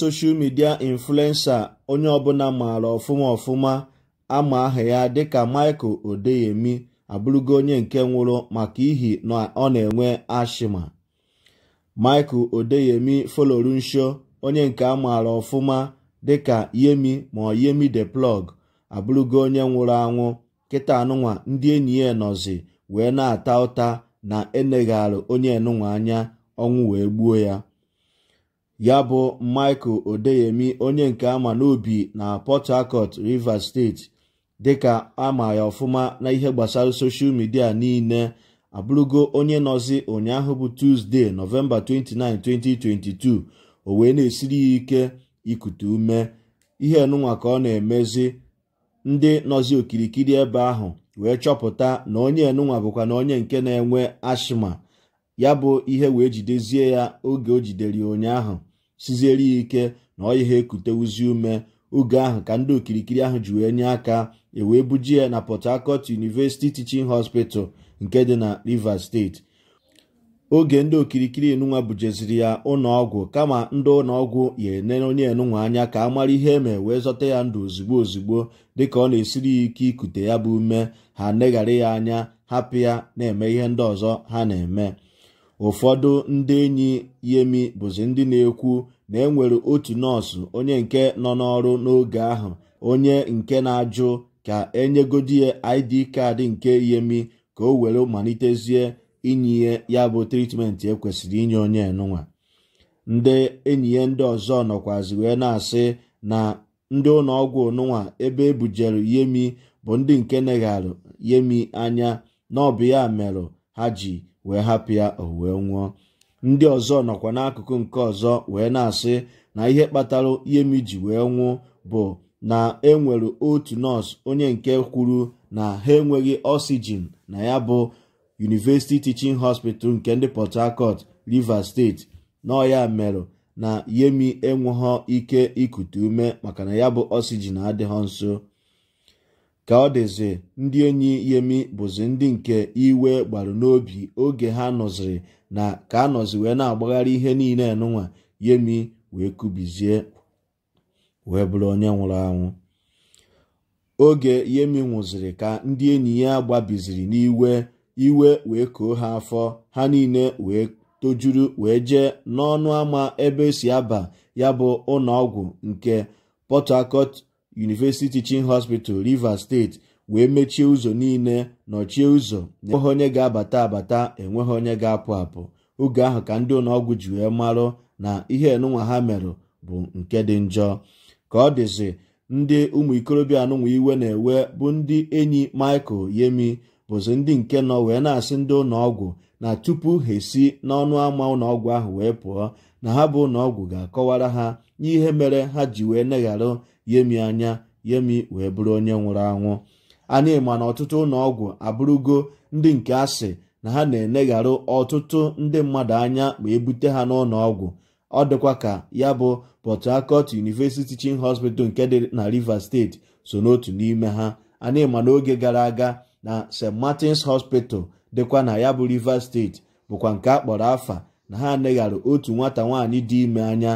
soshal midia influensa onye ọbụla maara ọfụma ọfụma ama aha ya dịka michael odeyemi abụrụgo onye nke nwụrụ maka ihi na ọ na-enwe ashima michael odeyemi folorunsho onye nke a maara ọfụma dịka yemi ma ọ yemi de plug abụrụgo onye nwụrụ anwụ kịta anụnwa ndị enyi ya nọzi wee na-ata ụta na enegharị onye enụnwa anya ọnwụ wee gbuo ya ya bụ michael odeyemi onye nke ama n'obi na port harcourt rivers state dịka ama ya ọfụma na ihe gbasara soshal midia niile abụrụgo onye nọzi ụnyaahụ bụ tuzdee nọvemba 29 2022 o wee na-esiri ya ike ikute ume ihe nụnwa ka ọ na-emezi ndị nọzi okirikiri ebe ahụ wee chọpụta na onye enụnwa bụkwa na onye nke na-enwe ashma ya bụ ihe wee jidezie ya oge o jidere ụnyaahụ siziere ya ike na ọ yiha ekutewuzi ume oge ahụ ka ndị okirikiri ahụ ji wee nye aka ewee buji ya na Port Harcourt University Teaching Hospital nke dị na Rivers State oge ndị okirikiri enunwa bujeziri ya ụlọọgwụ kama ndị ụlọọgwụ ya enere onye enunwa anya ka a mara ihe eme wee zọta ya ndụ ozugbo ozugbo dịka ọ na-esiri ya ike ikute ya bụ ume ha neghara ya anya hapụ ya na-eme ihe ndị ọzọ ha na-eme ụfọdụ ndị enyi Yemi bụzi ndị na-ekwu na enwere otu nọọsụ onye nke nọ n'ọrụ n'oge ahụ onye nke na-ajụ ka enyegodi ya ID kaadị nke Yemi ka o were malitezie inye ya bụ tritmenti ekwesịrị inye onye nụnwa ndị enyi ya ndị ọzọ nọkwazi wee na-asị na ndị ụlọ ọgwụ nụnwa ebe ebujere Yemi bụ ndị nke negharụ Yemi anya na ọ bụ ya merụ ha ji wee hapụ ya owee wee nwụọ ndị ọzọ nọkwa n'akụkụ nke ọzọ wee na-asị na ihe kpatara Yemi ji wee nwụ bụ na enwere otu nọọsụ onye nke kwuru na ha enweghị oxygen na ya bụ University Teaching Hospital nke ndị Port Harcourt Rivers State nọ ya merụ na Yemi enweghọ ike ikute ume maka na ya bụ oxygen adịghọ nso ka ọ dịzị ndị enyi yemi bụzi ndị nke iwe gbaru n'obi oge ha nọziri na ka a nọzi wee na-agbagharị ihe niile nụnwa yemi wee kubizie wee bụrụ onye nwụrụ anwụ oge yemi nwụziri ka ndị enyi ya gbabiziri n'iwe iwe wee koo ha afọ ha niile wee tojuru wee jee n'ọnụ ama ebe esi aba ya bụ ụlọ nke Port University Teaching Hospital Rivers State wee mechie ụzọ niile nọchie ụzọ na enweghị onye ga-abata abata enweghị onye ga-apụ apụ oge ahụ ka ndị ụlọọgwụ ji wee marụ na ihe enunwa ha merụ bụ nke dị njọ ka ọ dịzi ndị ụmụ ikorobịa anụnwa iwe na-ewe bụ ndị enyi Michael Yemi bụzi ndị nke nọ wee na-asị ndị ụlọọgwụ na tupu ha esi n'ọnụ ama ụlọọgwụ ahụ wee pụọ na ha bụ ụlọọgwụ ga-akọwara ha n'ihe mere ha ji wee negharụ yemi anya yemi wee bụrụ onye nwụrụ anwụ anyị ma na ọtụtụ ụlọọgwụ abụrụgo ndị nke asị na ha na-enegharụ ọtụtụ ndị mmadụ anya ma ebute ha n'ụlọọgwụ ọ dịkwa ka ya bụ Port Harcourt University chin Hospital nke dị na Rivers steeti so n'otu n'ime ha anyị ma n'oge gara aga na St. Martin's Hospital dịkwa na ya bụ Rivers steeti bụkwa nke a kpọrọ afa na ha neghara otu nwata nwaanyị dị ime anya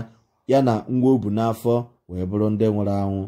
ya na nwa o bu n'afọ wee bụrụ ndị nwụrụ anwụ